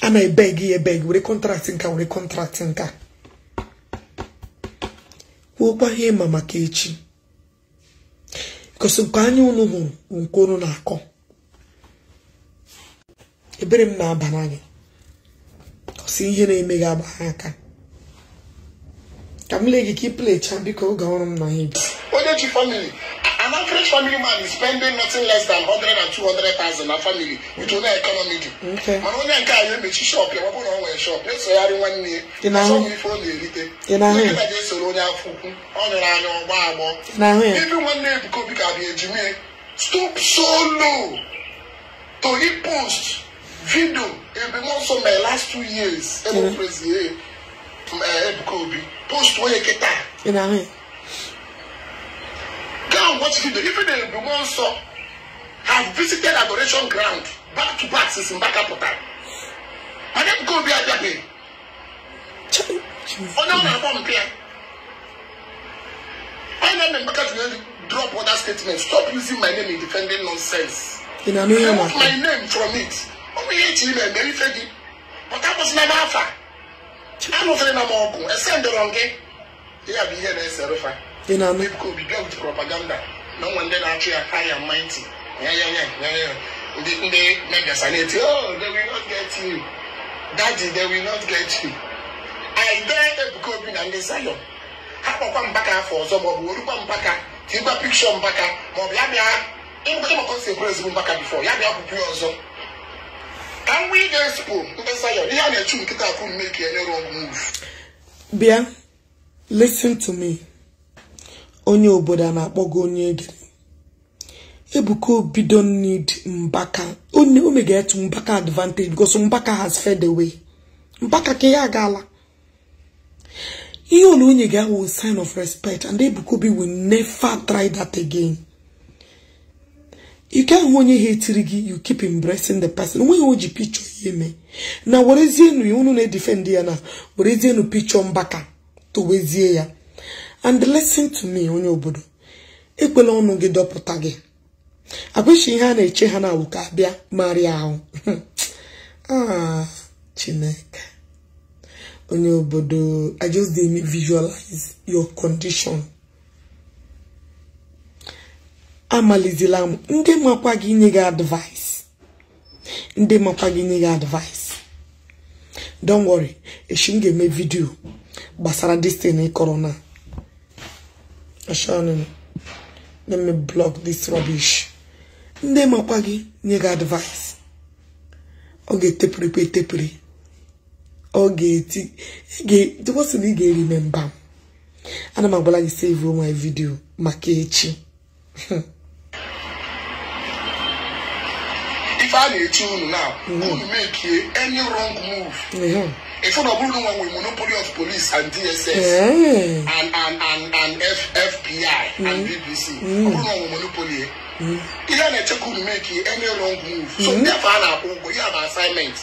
a na-ebeg ya ebeg were contract nka were contract nka kwuokwa ihe ịma maka echi because nke anya unu hụrụ nke na-akọ ebere m na-aba n'anya si ihe na-eme gị agba ha aka ka m lee ka ị biko oge ọrụ m nọ ya
family man is spending nothing less than 100 and 200,000 na family with onye economy dị mana onye a ya emechi shop ya ọ bụrụ na ọ nwere shop esogharị nwanne ya asọmụ ife ọ na-erite nkịta ga-esoro onye afọ ukwu ọ nyụrụ anya ọgbọ agbọ ebe nwanne Ebuka Obi ka bụ ejime stop so low to hit post video be more so my last two years ẹ mo praise ye ẹ Ebuka Obi post wey kita. girl watch video even though be more so, have visited adoration ground back to back since mbaka port harcourt and Ebuka Obi ajabe ọ̀nà ọ̀nà àbọ̀ mpẹ́ ọ̀nà ọ̀nà mbaka tún yẹn drop other statement stop using my name in defending nonsense
remove
my name from it. ọ bụ ihe iche ime mere ife gị pụta kwụsịla m afa anụfere na m ọgụ ese ndọrọ gị ya bụ ihe na-esere fa ebuka obibi ọgụji propaganda na nwa ndị na-achụ ya ha ya mma ntị ndị megasa na-eti oh they will not get you daddy they will not get you aide ebuka obi na ndị zayọn ha kpọkwa mpaka afọ ọzọ ma ọ bụ orukwa mpaka tigwa pikshọ mpaka ma ọ bụ ya bịa ịmụkọ si ekwere ezigbo mpaka bifọ ya bịa pụpụ ya ọzọ ka m wee ige sipụ mkpesa ya ihe a na-echu nkịta akụ mme ka enyere ọgwụ
bịa listen to me onye obodo a na akpọga onye dị Ebuka Obi don't need Mbaka o may get Mbaka advantage because Mbaka has fed away Mbaka ka ya gala ihe onye ga-awụ sign of respect and Ebuka Obi will never try that again you onye ha etiri gị you keep embracing the person when ji picho picture eme na werezie ya unu na defend ya na werezie nu picture mbaka to ya and listen to me onye obodo ekwela ọnụ gị dọpụta gị agwashi ihe a na-eche ha na ka abịa marịa ahụ ah chineke onye obodo i just dey visualize your condition amalizila m ndị makwa gị nye gị advice ndị makwa gị nye gị advice don't worry echi m ga-eme vidio gbasara this thing kọrọ na ashanụ let me block this rubbish ndị makwa gị nye gị advice ọ ga-etepụrịkwa etepụrị ọ ga-eti dịkwasịrị ị ga eri me m ana m agwala gị save my video maka echi
ife a na-eche unu na mhm. unu mekie any wrong move ịfụ na ọ bụrụ na nwe nwere monopoly of police and dss and and and fbi and bbc mhm. mhm. ọ bụrụ na monopoly e, ihe a na-echekwa unu mekie any wrong move so ndị afọ na-akwụ
ụgwọ bụ assignment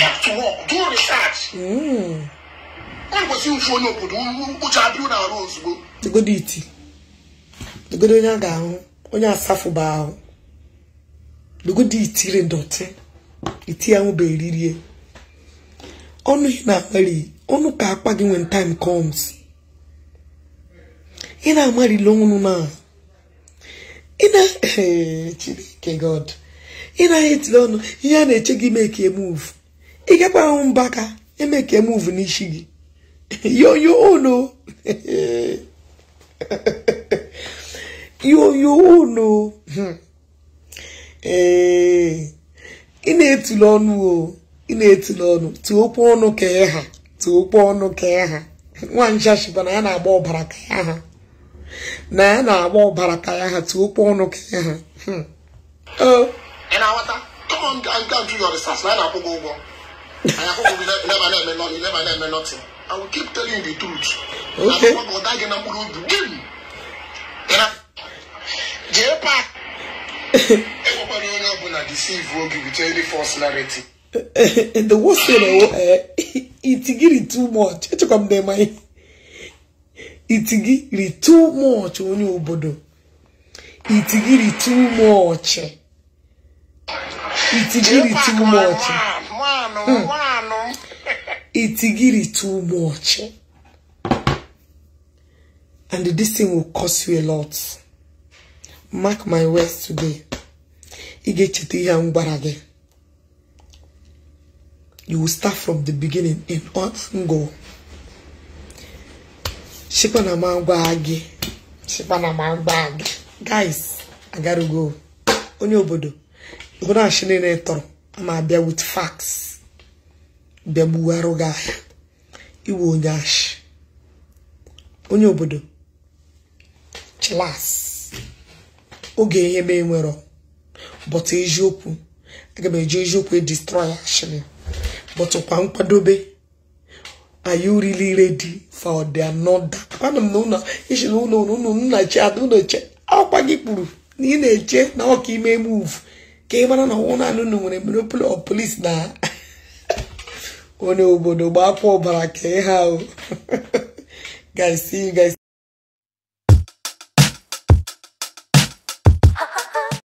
back to work do research ọ ụfụ onye obodo ụcha na arụ ozugbo
onye a ga-ahụ onye asafụba ahụ lugodi itire ndọtị iti ahụ bụ eririe ọnụ ị na-akpali ọnụ ka akpa gị when time comes ị na-amarịla ọnụ na ị na eh, chineke god ị na-etiri ọnụ ihe a na-eche gị mee ka emuvu ị gakwara ahụ mbaka eme ka emuvu n'isi gị yoyo ono yoyo ono hmm. ee ị na-etule ọnụ o ị na-etule ọnụ tụọ okwu ọnụ ka ha tụọ ọnụ ka ha nwaanyị chashiba na ya na-agba ọbara ka ya ha na ya na-agba ọbara ka ya ha tụọ ọnụ ka ya ha
keep telling you the truth. Jee paa! na onye ọbụla deceive oge between any
false narrative eh, eh, the worst thing ọ eh, itigiri too much echekwa m na ịma itigiri too much onye obodo itigiri too much itigiri too much hmm. itigiri too much and this thing will cost you a lot mark my words today ị ga-echeta ihe ngwara gị you will start from the beginning in all angle shikwa na m agwa gị shikwa na m agwa gị guys agarugo onye obodo ihunachi niile tọrọ ma abịa with facts bịa gbugharụ gị ahịa iwe onye ashị onye obodo chilas oge ihe nwere ọ. but eziokwu aga m eji eziokwu destroy action but kwa nkwadobe are you really ready for the another ana m na ụlọ ishi na ụlọ ụlọ nnachi ada ụlọche akwa gị kpuru na ị na-eche na ọka ime move ka ị mara na ọnwụ naanị ụlọ nwere monopoli of police na onye obodo gbapụ ọbara ka ha o guys see you guys